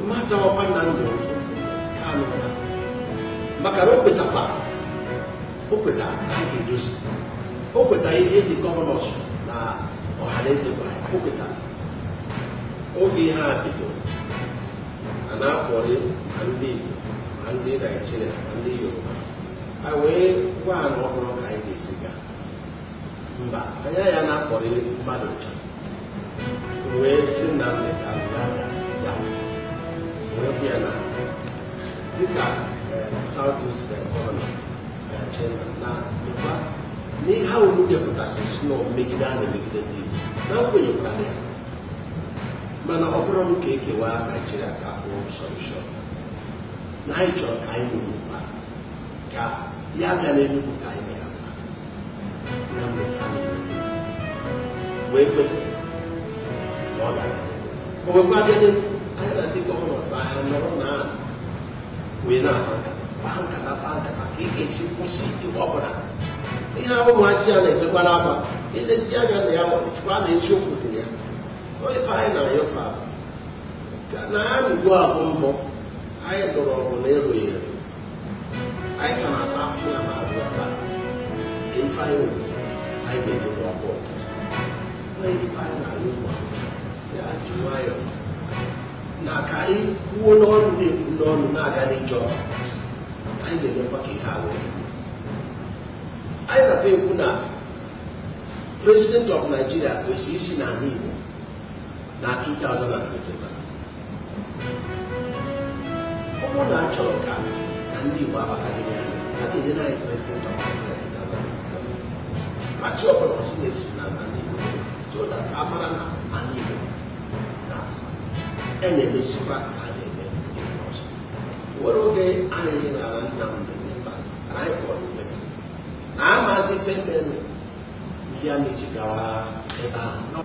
mmadụ ọba na ndụ kanụ maka na o kwetakwa o kweta ha ga-edozi o kweta ihe ndị gọvanọs na ọhaneze gwara o kweta oge ha bidoro a na-akpọrị ma ndị Igbo ma ndị Naijiria ma ndị Yoruba a wee gwa na ọhụrụ ka anyị ga-eziga esi mba anya ya na-akpọrị mmadụ ncha wee si na mmekọ ya bịa wee bịa na dịka Southeast uh, gọvanọ uh, chairman na mekwa n'ihe ahụ depụtasị si na megide a na-emegide ndị Igbo na nkwenyekwara ya mana ọ bụrụ nke ka ekewa Naijiria ka hụ solushọn na anyị chọrọ ka anyị ya bịa n'Enugu ka anyị ya na mgbe wee na ọ ga anyị na ndị gọvanọ ọzọ ahịa nọrọ na wee na-akpa nkata kpaa nkata kpaa nkata ka ị ga-esi kwụsị ịgba ọbụla ihe ahụ ụmụazị ya na-edekwara aba eleji anya na ya fụa na eziokwu dị ya ife anyị na-ayọfe ka na ya rugo abụ mbụ anyị lụrụ ọgụ na erughị eru anyị ka na-ata afọ ya na-abụ ya taa ka ife anyị anyị ga-eji n'ọgụ ife anyị na-ayọ ụmụazị ya ji nwayọọ na ka anyị kwuo n'ọnụ na-ekwu n'ọnụ na-aga n'ịjọ anyị ga-emekwa ka ihe a anyị na ekwu na president of Nigeria kwesịrị isi n'ala Igbo na 2023 ọ bụrụ na achọrọ ka na ndị Igbo abakalịrị anyị a ga-enye anyị president of Nigeria pati ọbụla si na-esi n'ala Igbo so that amara na ala Igbo na ɛna ɛbɛsi fa ana ɛna ɛbɛsi fa so wɔn oge ayɛ na ara nam ne ne ba ara ɛkɔ ne na ama ase fɛn a na ekyi gawa ɛba.